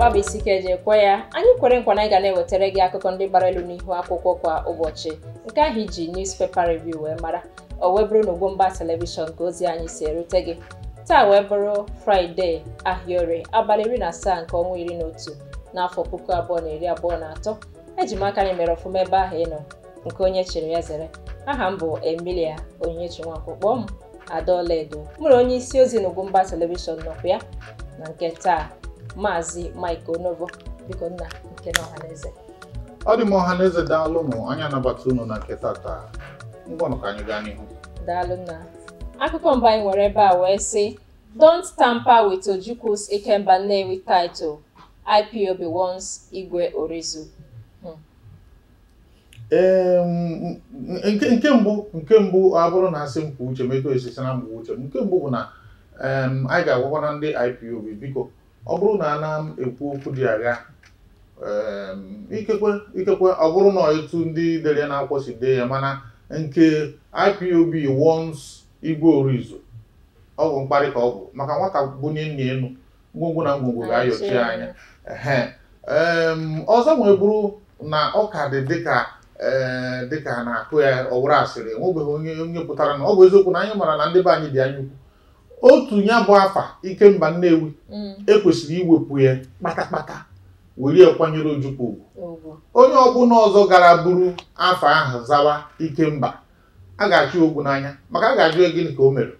na-agbalịsi ike ya anyị kwere nkwa na ga na-ewetara gị akụkọ ndị gbara elu n'ihu akwụkwọ kwa ụbọchị nke ahụ iji newspaper revi wee mara o wee bụrụ na mba telivishọn ka ozi anyị si erute gị taa wee bụrụ fraịde ahịaorie abalị iri na asaa nke ọnwa iri na otu n'afọ puku abụọ na iri abụọ na atọ eji m aka mere ọfụma ebe ahụ ị nọ nke onye chịrị ya zere aha m bụ emilia onyinyechi nwankwo kpọọ m adaọla edo mụrụ onye isi ozi na Ugwumba telivishọn nọkwa ya na nke taa maazị Mike Onovo biko nna nke na ọ dị m ọhaneze daalụ mụ anya anabata ụnụ na nke tata ngwanụ ka anyị gaa n'ihu daalụ nna akụkọ mba anyị nwere ebe a wee sị don't tamper with Ojukwu's Ikemba Nnewi title IPOB wants Igwe Orizu hmm. nke mbụ nke mbụ abụrụ na asị m kwuo uche m eto esisi na mgbe uche m nke mbụ bụ na anyị ga-agwakwana ndị IPOB biko ọ bụrụ na ana m ekwu okwu dị agha ikekwe ikekwe ọ bụrụ na etu ndị dere na-akwụkwọ si dee ya mana nke IPOB wons Igwe Orizu ọ bụ mkparị ka ọ bụ maka nwata bunye nna elu ngwongwo na ngwongwo ga-ayọchi anya ee ọzọ wee bụrụ na ọ ka dị dịka dịka na-akụ ya ọ asịrị enwebeghị onye onye pụtara na ọ bụ eziokwu na anyị mara na ndị be anyị dị anya ukwu otu ya bụ afa ikemba nnewi mm. ekwesịrị iwepụ ya kpatakpata were kwanyere ojukwu ugwu onye ọbụla ọzọ gara buru afa ahụ zawa ikemba a ga-achụ ogwu n'anya maka a ga-ajụ gịnị ka o mere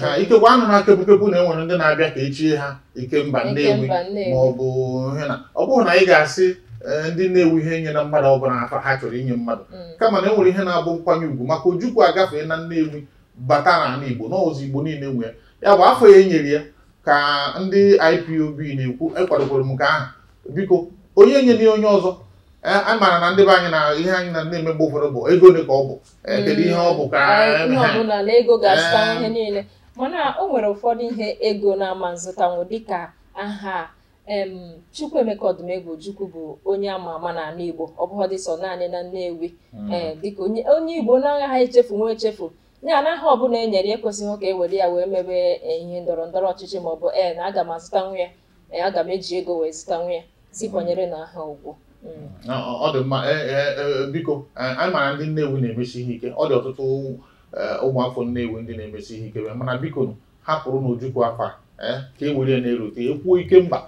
ha ikekwa anụ na kepụkepụ na enwere ndị na-abịa ka echie ha ikemba nnewi ma ọ bụ hena ọ bụghị na ị ga-asị e, ndị na-ewu ihe nye na mmadụ ọbụla afa ha chọrọ inye mmadụ mm. kama na enwere ihe na-abụ nkwanye ugwu maka ojukwu agafee na nnewi bata n'ala igbo n'ọzọ igbo niile nwe ya ya bụ afọ ya enyere ya ka ndị IPOB na-ekwu ekwadokwara m nke ahụ biko onye nyere ya onye ọzọ e, a maara na ndị be anyị na ihe anyị na na-eme mgbe ụfọdụ bụ ego ole ka ọ bụ e, hmm. kedu ihe ọ bụ ka e ego ga-azụta ihe niile mana o nwere ụfọdụ ihe ego na-ama nzụtanwụ dịka aha Chukwuemeka Odumegwu chukwu bụ onye ama ama na ala Igbo ọ naanị na Nnewi hmm. dịka onye Igbo na-agaghị echefu nwa echefu ya na aha ọbụla e nyere ekwesịghị ka e were ya wee mebe eh, ihe ndọrọ ndọrọ ọchịchị ma ọ bụ e eh, na aga m azụta nwa ya eh, aga m eji ego wee zụta nwa ya si kwanyere na aha ugwu mm. ọ dị mma biko anyị mara ndị Nnewi na-emesi ihe ike ọ dị ọtụtụ ụmụafọ Nnewi ndị na-emesi ihe ike mana biko hapụrụ n'Ojukwu afa ka e were ya na-erute ekwuo ike mba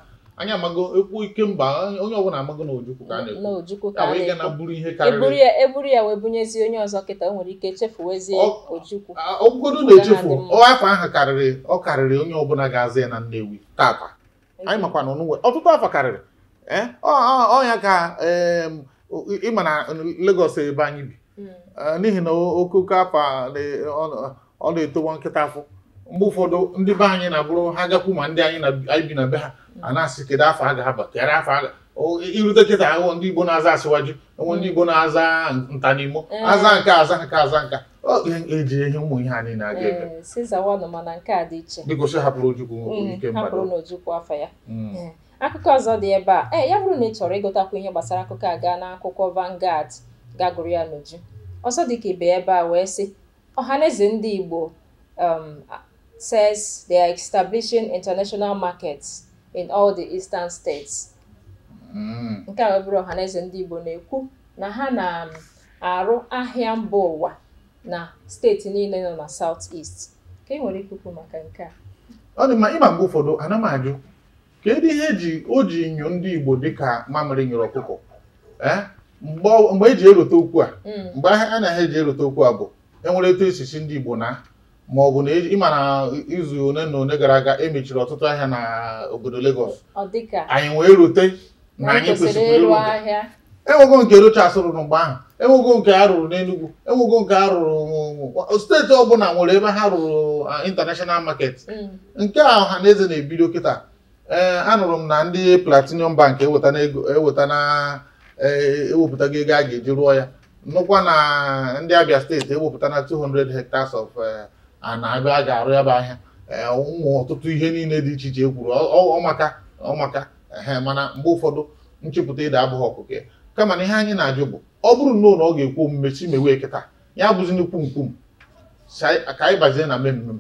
anyị amago ekwu mba onye ọbụla amago na ojukwu ka a na-ekwu ya wee ga na buru ihe karịrị eburu ya wee bunyezie onye ọzọ kịta o nwere ike chefuwezie ojukwu ọgwụgodo na-echefu afọ ahụ karịrị ọ karịrị onye ọbụla ga-aza ya na nnewi tata anyị makwa na ọnụnwe ọtụtụ afọ karịrị e, ọ ya ka ịma na Lagos ebe anyị bi hmm. e, n'ihi na okoko afọ ọ na-etowa nkịta afọ mgbe ụfọdụ ndị be anyị na-abụrụ ha gakwu ma ndị anyị na-ebi na be ha a na-asị kedu afọ a ga-aba kedu afọ a irute kịta ahụ ndị Igbo na-aza asịwaju enwe ndị Igbo na-aza nta ntanimo eh. aza nke aza nke aza nka eji e ihe ụmụ ihe anyị na-aga ebe biko eh, si hapụrụ Ojukwu mm, ike ya. Mm. Eh, akụkọ ọzọ dị ebe a ya bụrụ na ị chọrọ ịgụtakwu ihe gbasara akụkọ a gaa n'akwụkwọ Vanguard gagụrụ ya n'uju ọzọ dị ka ibe ebe a wee sị ọhaneze ndị Igbo um, says they are establishing international markets in all the eastern states mm. nke a bụrụ ọhaneze ndị Igbo na-ekwu na ha na-arụ ahịa mba ụwa na steeti niile nọ na South East ka ị e nwere ikuku maka nke a ọ dị mma ịma mgbe ụfọdụ ana m ajụ kedu ihe eji o ji nyo ndị Igbo dịka mamịrị nyere ọkụkọ eh? mgbe eji e erute okwu a mm. mgbe ahịa a na-ahịa eji erute okwu a bụ enwere etu esisi ndị Igbo na ma ọ bụ na ma na izu one na one gara aga emechiri ọtụtụ ahịa na obodo Lagos anyị wee rute na anyị kwesịrị ịrụ enwego nke Rochas rụrụ mgbe ahụ enwego nke a rụrụ n'Enugu enwego nke a rụrụ steeti ọbụla nwere ebe ha rụrụ international market mm. nke a ọha na eze na-ebido kịta e, anụrụ m na ndị Platinum Bank eweta na e, ewepụtago ego a ga-eji rụọ ya nụkwa na ndị Abia steeti ewepụta na 200 hectares of e, a na-abịa a ga-arụ ya ahịa ụmụ ọtụtụ ihe niile dị iche iche e kwuru ọmaka ọmaka ehe mana mgbe ụfọdụ nchepụta ịda abụghị ọkụkọ ya kama na ihe anyị na-ajụ bụ ọ bụrụ na ụlọ ọ ga-ekwu omume si mewee kịta ya bụzi n'ikwu nkwum ka anyị bazie na mmemme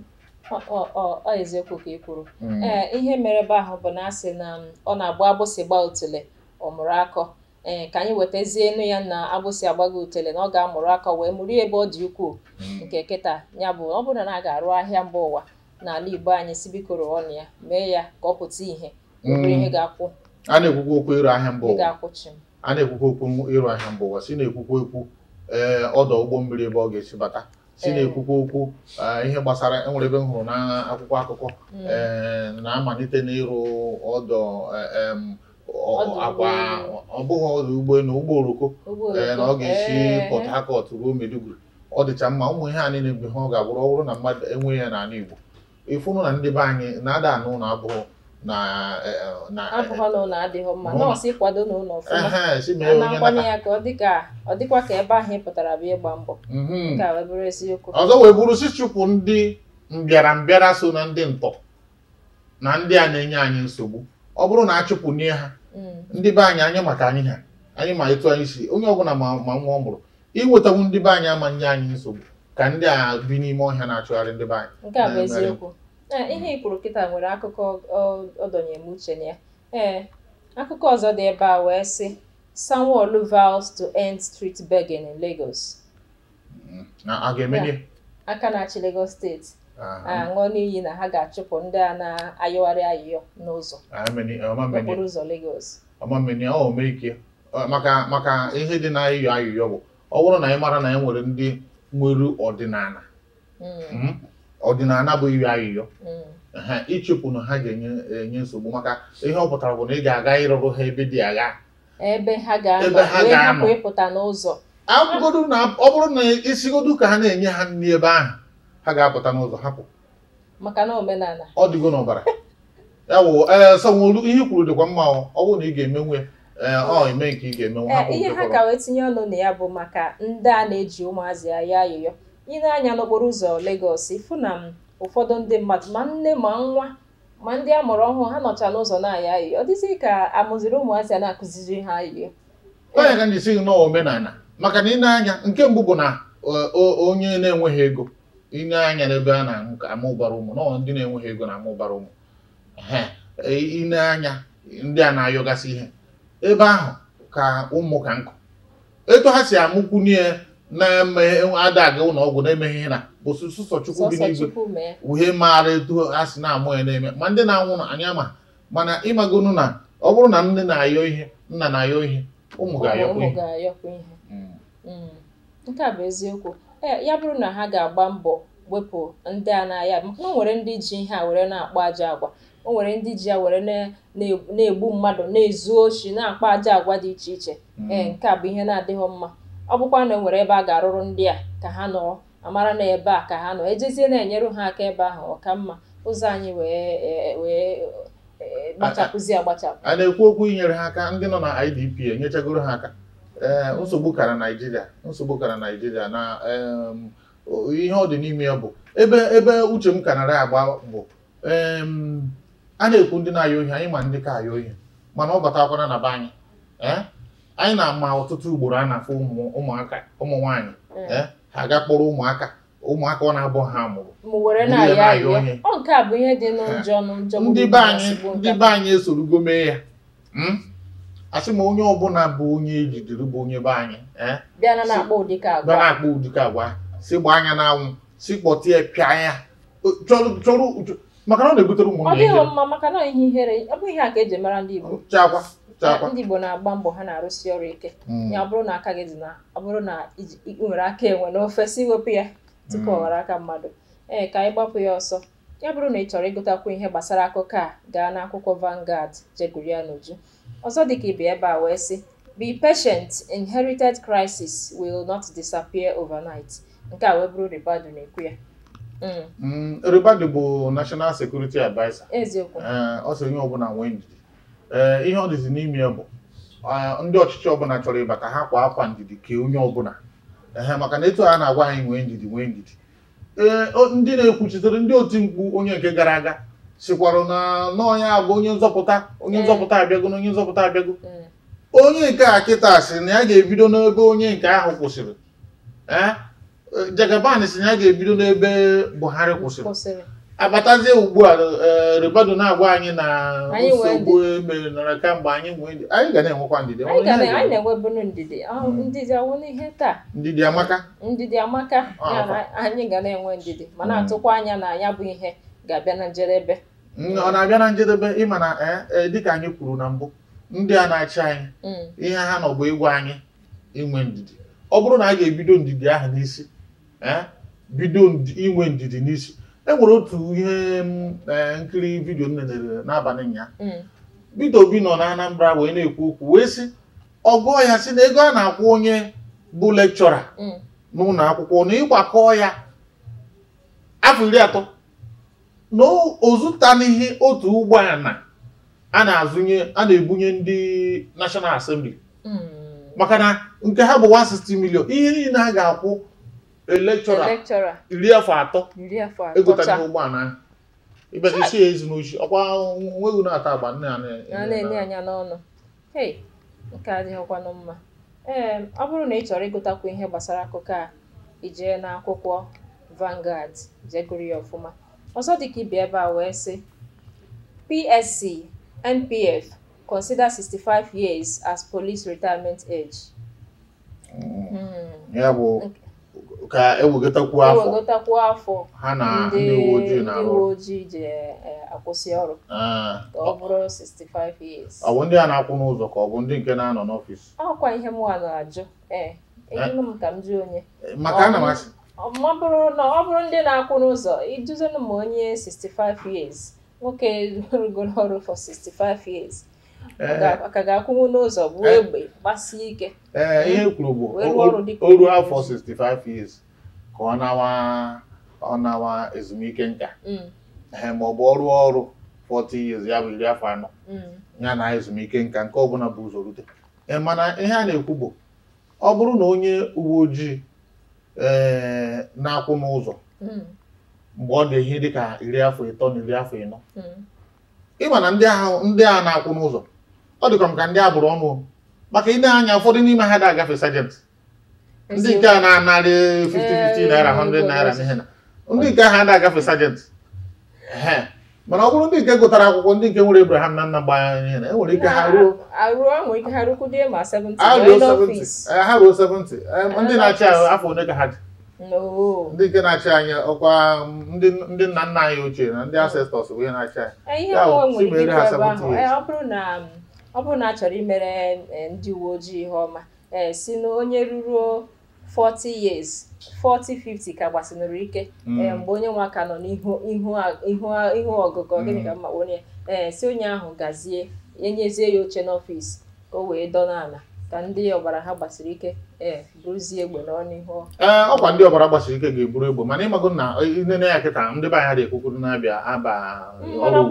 ọ eziokwu ka ị kwuru mm. ee ihe mere ebe ahụ bụ na asị na um, ọ na-agba agbụsị gbaa otule ọ mụrụ akọ ee eh, ka anyị wetazie enu ya na agbụsị agbago utele na ọ ga-amụrụ aka wee mụrụ ebe ọ dị ukwuu hmm. nke kịta ya bụ ọ bụrụ na a ga-arụ ahịa mba ụwa n'ala Igbo anyị si bikoro ọnụ ya mee ya ka ọ pụta ihe hmm. ihe ga-akwụ a na-ekwukwa okwu ịrụ ahịa mba ụwa a na-ekwukwa okwu ịrụ ahịa mba ụwa si na-ekwukwa okwu ee eh, ọdọ ụgbọ mmiri ebe ọ ga-esi bata si eh. na-ekwukwa okwu ihe gbasara enwere ebe m hụrụ na akwụkwọ akụkọ hmm. na-amalite n'ịrụ ọdọ ọ bụghị ọdụ ụgbọelu ụgbọ oroko ee na ọ ga-esi Port Harcourt ruo Maiduguri ọ dịcha mma ụmụ ihe a niile mgbe ihe ọ ga-abụrụ ọ bụrụ na mmadụ enweghị ya n'ala Igbo ịfụnụ na ndị be anyị na-ada anụ ụlọ abụghị na si mee onye ọzọ wee bụrụ si chụpụ ndị mbịarambịara so na ndị ntọ na ndị a na-enye anyị nsogbu ọ bụrụ na achụpụ nye ha Mm. ndị be anyị anya maka anyị ha anyị ma etu anyị si onye ọbụla ma ma nwa ọ mụrụ iwetawu ndị be anyị ama nye anyị nsogbu ka ndị a bi n'ime ọhịa na-achụgharị ndị be anyị nke a bụ eziokwu e, ihe ikwuru kịta nwere akụkọ ọdọnyem uche na ya ee akụkọ ọzọ dị ebe a wee sị Sanwo-Olu vows to end street begging in Lagos mm. a ga-emeli aka na-achị Lagos steeti aṅụ ah, n'iyi na ha ga-achụpụ ndị a na-ayọgharị ayịyọ n'ụzọ maka maka ihe dị na ayụyọ ayịyọ bụ ọ bụrụ na ị mara na anyị e nwere ndị nwere ọdịnala hmm. Hmm? ọdịnala bụ iri ayịyọ ha hmm. ịchụpụ na ha ga-enye nsogbu maka ihe ọ pụtara bụ na ị ga-aga ịrụrụ ha ebe dị agha ebe ha ga-anọ ọ bụrụ na isigodu ka ha na-enye ha nri ebe ahụ ha ga-apụta n'ụzọ hapụ maka na omenala ọ dịgo n'ọbara ya wụ ee sanwolu ihe kwuru dịkwa mma ọ bụrụ na ị ga-emenwe eme ọ ime nke ị ga-emenwe eme ihe ha ka wee tinye ọnụ na ya bụ maka ndị a na-eji ụmụazị ya ayọyọ ị na-anya n'okporo ụzọ Lagos ịfụ na ụfọdụ ndị mmadụ ma nne ma nwa ma ndị a mụrụ ọhụụ ha nọcha n'ụzọ na-ayọ ayịyọ ọ dịzị ka amụziri ụmụazị a na-akụziri ha ayọyọ onye ka na-esighị n'omenala maka na ị anya nke mbụ bụ na e, onye na-enweghị ego inye anya n'ebe a na-aṅụ ka amụbara ụmụ nọ ndị na-enweghị ego na amụbara ụmụ e, ine anya ndị a na-ayọgasị ihe ebe ahụ ka ụmụ ka nkụ etu ha si amụkwunye na-eme ada ụlọ ọgwụ na-emeghị ihe na bụ sụsọ chukwu gị n'igwe uhe maara etu ha si na-amụ ya na-eme ma ndị na-anwụ anya ma mana ịmagonu na ọ bụrụ na nne na-ayọ ihe nna na-ayọ ihe ụmụ ga-ayọkwa ihe hmm. Hmm. nke a bụ eziokwu E, ya bụrụ na ha ga-agba mbọ wepụ ndị a na-aya maka na o nwere ndị ji ihe a were na-akpọ ajọ agwa o nwere ndị ji ya were na-egbu mmadụ na-ezu ochi na-akpa ajọ agwa dị iche iche ee mm. nke a bụ ihe na-adịghị mma ọ bụkwa na o e nwere ebe a ga-arụrụ ndị a ka ha nọ amara na ebe a ka ha nọ ejezie na-enyere ha aka ebe ahụ ọ ka mma ụzọ anyị wee e, wee gbachapụzi agbachapụ a na-ekwu okwu inyere ha aka ndị nọ na IDP enyechagoro ha aka Eh, nsogbu kara naijiria nsogbu kara naijiria na ihe ọ dị n'ime ya bụ ebe ebe uche m ka nara agba bụ a na-ekwu ndị na-ayọ ohi anyị ma ndị ka ayọ ohi mana ọ batakwana na be anyị eh, anyị na-ama ọtụtụ ugboro a na-afụ ụmụaka ụmụ nwaanyị mm. eh, ha aga kpọrọ ụmụaka ụmụaka ọ na-abụ ha mụrụ ndị ndị be anyị esorugo mee ya hmm? asị m onye ọbụla bụ onye ejidere bụ onye be anyị eh? bịa na-akpa ụdịka agwa si gbaa anya n'anwụ si kpọtịa pịa ya chọrọ maka na ọ na-ebutere ụmụnne ya mma maka na ihe ihere ọ bụ ihe a ka eji mara ndị Igbo ndị Igbo na-agba mbọ ha na-arụsi ọrụ ike hmm. ya ọ bụrụ na aka gị dị na ọ bụrụ na i nwere aka enwe n'ofe si wepụ ya tupu hmm. ọ ghara aka mmadụ ee ka anyị gbapụ ya ọsọ ya bụrụ na ị chọrọ ịgụtakwu ihe gbasara akụkọ a gaa n'akwụkwọ Vanguard jegụrụ n'uju Ọzọdịgba ebe a wee sị, "Be patient, inherited crisis will not disappear overnight" nke a wee bụrụ Ribadu na-ekwu ya mm. Mm, Ribadu bụ National Security Adviser ọ sị onye ọbụla nwee ndidi ihe ọ dịzi n'ime ya bụ ndị ọchịchị ọbụla chọrọ ịbata ha kwa akwa ndidi kee onye ọbụla ee maka na etu a na-agwa anyị nwee ndidi nwee ndidi ee ndị na-ekwuchitere ndị oti mkpu onye nke gara aga sikwarụ na n'ọnya abụ onye nzọpụta onye eh. nzọpụta abịago na onye nzọpụta abịago eh. onye nke a kịta sị na ya ga-ebido n'ebe onye nke ahụ kwụsịrị eh? jagaban si na ya ga-ebido n'ebe buhari kwụsịrị abatazie ugbu a ribado na-agwa anyị na nsogbu emere nara kamgbe anyị nwee e anyị ga na-enwekwa ndidi anyị na-enweburu ndidi hmm. ndidi awụ taa ndidi amaka ndidi amaka anyị ga na-enwe ndidi ma hmm. na-atụkwa anya na ya bụ ihe ga-abịa na njedebe ọ na-abịa na njedebe ịma na eh, eh, dịka anyị kwuru na mbụ ndị a na-achị anyị mm. ihe ha nọ bụ egwu anyị inwe ndidi ọ bụrụ na a ga-ebido ndidi ahụ n'isi eh, bido inwe ndidi n'isi e nwere otu ihe mm, nkiri vidiyo m nenere n'abalị ụnyaahụ bido mm. Obi nọ na Anambra wee na-ekwu okwu wee sị ọgụọ ya sị na ego a na-akwụ onye bụ lekchọra n'ụlọ akwụkwọ na ịgbakọ ya afọ iri atọ na ozụtanihi otu ụgbọala a na-azụnye a na-ebunye ndị nashọnal Assembly hmm. maka na nke ha bụ 160 million ihe niile a ga-akwụ elekchọra iri afọ atọ egotara ụgbọala ahụ ịbịagosi ya ezi n'ochi ọkwa nweghị na-ata agba nne ya na-enye anya n'ọnụ hei nke adịghịkwanụ mma ọ bụrụ na ị chọrọ ịgụtakwu ihe gbasara akụkọ a ijee n'akwụkwọ vangard jegụrụ ya ọfụma ọzọ dị ka ibe ebe a wee sị psc npf consider 65 years as police retirement age. ya bụ ka ewegotakwuo afọ ewegotakwuo afọ ha na ndị uwe ojii na uwe ojii ji akwụsị ọrụ ah. ka ọ bụrụ 65 years. ọ bụ ndị a na-akwụ n'ụzọ ka ọ bụ ndị nke na-anọ n'ọfịs. ọkwa ihe m wa na-ajụ ee eh, eh. ejụrụ m ka m jụ onye. maka ana m ma ọ bụrụ na ọ bụrụ ndị na-akwụ n'ụzọ iduzinu ma onye 65 years nwoke rugoro ọrụ for 65 years ka ga-akwụnwu n'ụzọ bụ eh, egbe gbasie ike eh, ihe kwuru bụ oru afọ 65 years ka ọ nawa ọ nawa ezumike nka mm. ma ọ bụ ọrụ ọrụ 40 years ya bụ iri afọ anọ mm. ya na ezumike nka nke ọbụla bụ ụzọ rute eh, mana ihe a na-ekwu bụ ọ bụrụ na onye uwe ojii na-akwụ n'ụzọ hmm. mgbe ọ dị ihe dịka iri afọ ịtọ na iri afọ ịnọ hmm. ịma na ndị a na-akwụ n'ụzọ ọ dịkwa m ka ndị agbụrụ ọnụ maka ị anya ụfọdụ n'ime ha ga agafe sajent ndị nke a na-anarị 50 50 naira 100 naira n'ihe na ndị nke ha da-agafe sajent mana ọ bụrụ ndị nke gụtara akwụkwọ ndị nke nwere Abraham na nna gbanya ihe na enwere ike ha ruo ha ruo 70 ndị na-achị anyị afọ one ka ha dị ndị nke na-achị anyị ọkwa ndị nna nna anyị ochie na ndị asestọs bụ ihe na-achị anyị ọ bụrụ na a chọrọ imere ndị uwe ojii ihe ọma si na onye ruruo 40 years 40 50 ka gbasinụrụ ike mm. ee eh, mgbe onye nwa ka nọ n'ihu ọgụgụ gịnị mm. ka mma onye ee eh, si onye ahụ gazie enyezie ya oche n'ọfịs ka o wee dọ ala ka ndị ọbara ha gbasiri ike ee eh, bụrụzie egbe n'ọnụ ee ọkwa ndị ọbara gbasiri ike ga-eburu egbe mana ịmago na nene ya kịta ndị be mm, dị ekwukwuru na-abịa aba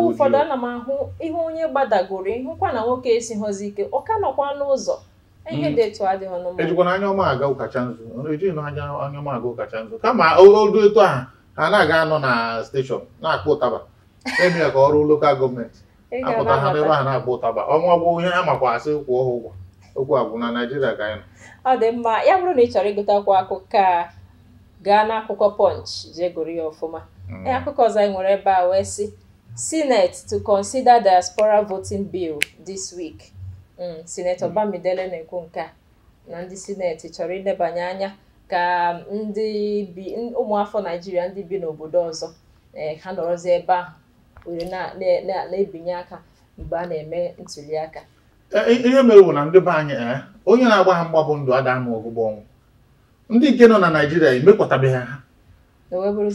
ụfọdụ ana m ahụ ihe onye gbadagoro ịhụkwa na nwoke esighọzi ike ọ ka nọkwa n'ụzọ ejikwana anya ọma aga ụkacha nzu ejighị na anya anya ọma aga ụkacha nzu kama odu etu a ha na-aga anọ na steshọn na-akpọ ụtaba emie ka ọrụ lokal gọọmenti apụta ha n'ebe ha na-akpọ ụtaba ọnwa gwụ ihe ha makwa asị kwụọ ha ụgwọ okwu agwụ na naịjirịa ka anyị nọ ọ dị mma ya bụrụ na ị chọrọ ịgụta akwụkwọ akụkọ a gaa oh, n'akwụkwọ oh, uh, punch jee gụrụ ya ọfụma akụkọ ọzọ anyị nwere ebe a wee sị senate to consider diaspora voting bill this week Mm, sinetọ mm. Bamidele na-ekwu nke a na ndị sineti chọrọ ilebanye anya ka ndị bi ụmụafọ Naijiria ndị bi n'obodo ọzọ eh, ha nọrọzi ebe ahụ were na-ebinye aka mgbe a na-eme ntuli aka eh, ihe mere bụ na ndị be anyị eh, onye na-agba ha mgba bụ ndụ ada ama ọgbụgbọ ọnwụ ndị nke nọ na Naịjirịa emekwatabeghị ha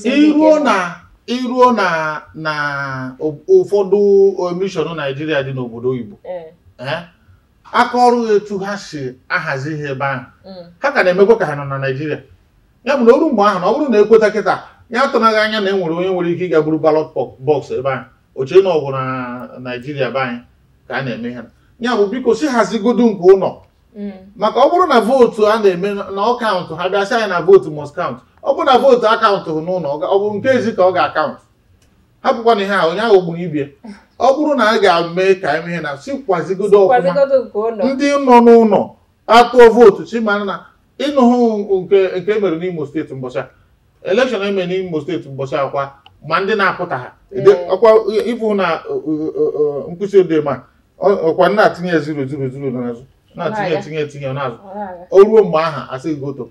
e iruo na iruo na na ụfọdụ emishọn Naijiria dị n'obodo oyibo aka ọrụ etu ha si ahazi ihe ebe ahụ mm. ha ka na-emekwa ka ha nọ na naijiria ya na oru mgbe ahụ na ọ bụrụ na ekweta kịta ya tụnaghị anya na e nwere onye nwere ike ịga buru balọt bọksụ ebe ahụ oche na ọgwụ na naijiria be anyị ka a na-eme ha ya bụ biko si hazigodu nke ụlọ mm. maka ọ bụrụ na vootu a na-eme na ọkaụntụ ha ha si anyị na vootu mọs kaụntụ ọ bụrụ na vootu akaụntụ n'ụlọ ọ bụ nke ezi ka ọ ga-akaụntụ hapụkwa na ihe a onye ahụ gburu ibie ọ bụrụ na a ga-eme ka ihe na sikwazigodo ọfụma ndị nọ n'ụlọ atụọ vootu chimana na ịnụhụ nke emere n'Imo steeti mbọchị elekshọn emere n'Imo steeti mbọchị akwa ma ndị na-apụta ha ọkwa ịbụ na nkwụsị ma ọkwa na-atinye zuru zuru zuru n'azụ na-atinye etinye etinye n'azụ o ruo mgbe aha asị go to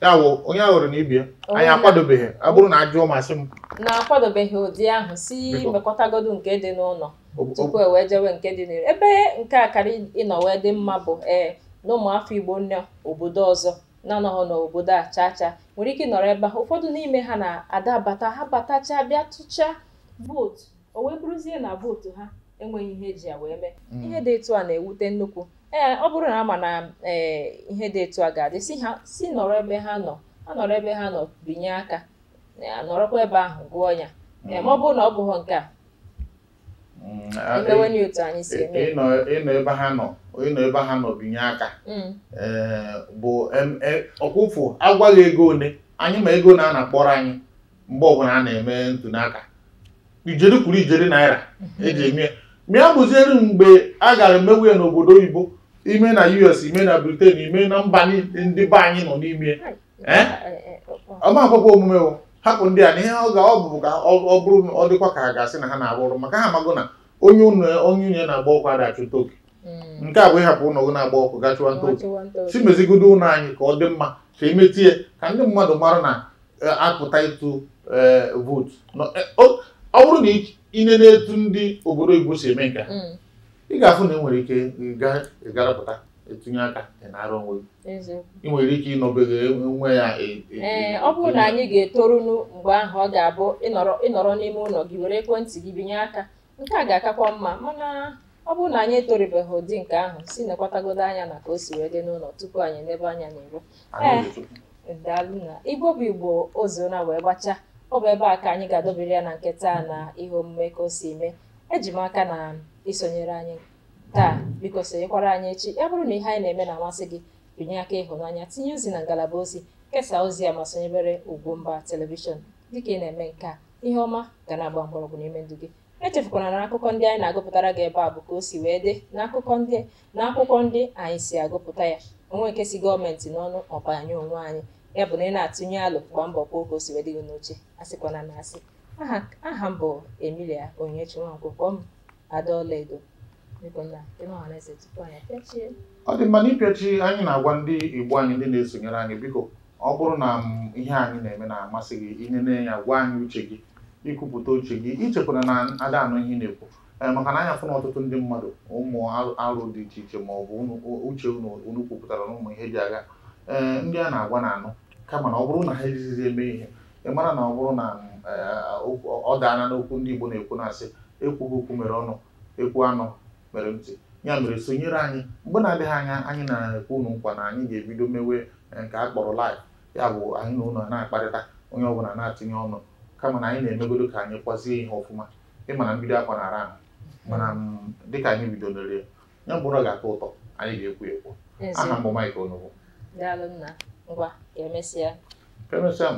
ya wụ onye ahụrụ na ibi anyị akwadobeghị ọ bụrụ na ajụọ masị m na-akwadobeghị ụdị ahụ si mekọtagodu nke dị n'ụlọ tupu e wee jewe nke dị n'elu ebe nke a karị ịnọ wee dị mma bụ ee na ụmụafọ igbo nọ obodo ọzọ na-anọghị n'obodo a chaa chaa nwere ike ịnọrọ ebe ahụ ụfọdụ n'ime ha na-adabata ha batachaa bịa tụchaa vootu o wee bụrụzie na vootu ha enweghị ihe eji ya wee mee mm. ihe dị etu a na-ewute nnukwu ee ọ bụrụ na ama na ee ihe dị etu a ga-adị si ha si nọrọ ebe ha nọ ha nọrọ ebe ha nọ binye aka e, nọrọkwa ebe ahụ gụọ ya e, ma ọ bụrụ na ọ bụghị nke a mm, e, anyị si eme ịnọ ebe ha nọ ịnọ ebe ha nọ binye aka mm. bụ ọkwụfụ agwaghị ego one anyị ma ego na a na-akpọrọ anyị mgbe ọbụla a na-eme ntụnaka ijeri kwuru ijeri naira eji eme mịa bụziere mgbe a gara emewe n'obodo oyibo ime na US ime na Britain ime na mba ndị be anyị nọ n'ime eh? ọmakwụkwọ omume hapụ ndị a na ihe ọ bụrụ ka ọ bụrụ ọ dịkwa ka ha ga-asị na ha na-arụ ọrụ maka ha amagụ na onye onye unye na-agba ọkụ adachụta oke hmm. nke a bụ ịhapụ ụlọ gị na-agba ọkụ gachụwa ntoke si mezigodo ụlọ anyị ka ọ dị mma ka emetie ka ndị mmadụ mara na eh, apụta ịtụ eh, vootu ọ bụrụ na ine na-etu ndị obodo Igbo si eme nka mm. ị ga-afụ na e nwere ike ga ịgarapụta etinye aka ị na-arụ onwe ị nwere ike ịnọbeghị nwe ya e, e, e, ọ bụrụ na anyị ga-etorunu mgbe ahụ ọ ga-abụ ịnọrọ n'ime ụlọ gị were ekwentị gị binye aka nke a ga-akakwa mma mana ọ bụrụ na anyị etoribeghị ụdị nke ahụ si nekwatagodo anya na ka o si wee dị n'ụlọ tupu anyị nebe anya n'iro ee daalụ na Igbo bụ Igbo oziụra wee gbachaa ọ bụ ebe a ka anyị ga-adọbiri ya na nke taa na ihe omume ka o si eme eji m aka na isonyere anyị taa biko sonyekwara anyị echi ya bụrụ na ihe anyị na-eme na-amasị gị binye aka ịhụnanya tinye ozi na ngalaba ozi kesaa ozi ya ma sonyebere mba telivishọn dịka ị na-eme nke a ihe ọma ga na-agba mgbọrọgwụ n'ime ndụ gị echefukwana na akụkọ ndị anyị na-agụpụtara gị ebe a bụ ka o si wee dị n'akụkọ ndị na akwụkwọ ndị anyị si agụpụta ya onwe nke si gọọmenti n'ọnụ ọbanye onwe anyị ya bụ na ị na-atụnye alụ gba mbọ kwa oge o si wedịghị n'uche asịkwana na asị aha m bụ Emilia Onyinyechi Nwankwo kpọọ m ada ọlaedo ọ dị mma n'ịpịachi anyị na-agwa ndị Igbo anyị ndị na-esonyere anyị biko ọ bụrụ na ihe anyị na-eme na-amasị gị ihe na-enye gwa anyị uche gị ikwupụta uche gị ichekwara na ada anụ ihe na-ekwu maka na anya fụ na ọtụtụ ndị mmadụ ụmụ arụ dị iche iche ma ọ bụ uche unu kwupụtara na ụmụ ihe ji agha ndị a na-agwa na anụ kama na ọ bụrụ na ha ezizi eme ihe ị mara na ọ bụrụ na eh, ọ daana n'okwu ndị Igbo na-ekwu na-asị ekwughị okwu mere ọnụ ekwu anụ mere ntị ya mere sonyere anyị mgbe na-adịghị anya anyị na-ekwu unu nkwa na anyị ga-ebido mewe eh, nke a kpọrọ live ya bụ anyị na ụlọ na-akparịta onye ọbụla na-atụnye ọnụ kama na anyị na-emegodo ka anyị kwazie ihe ọfụma ịma na mbido akwa na-ara ahụ mana mm, dịka anyị bidonere ya bụrụ ọ ga-atọ ụtọ anyị ga-ekwu ekwu aha mbụ Mike Mwa, ye wè mwese ya? Ye wè mwese ya.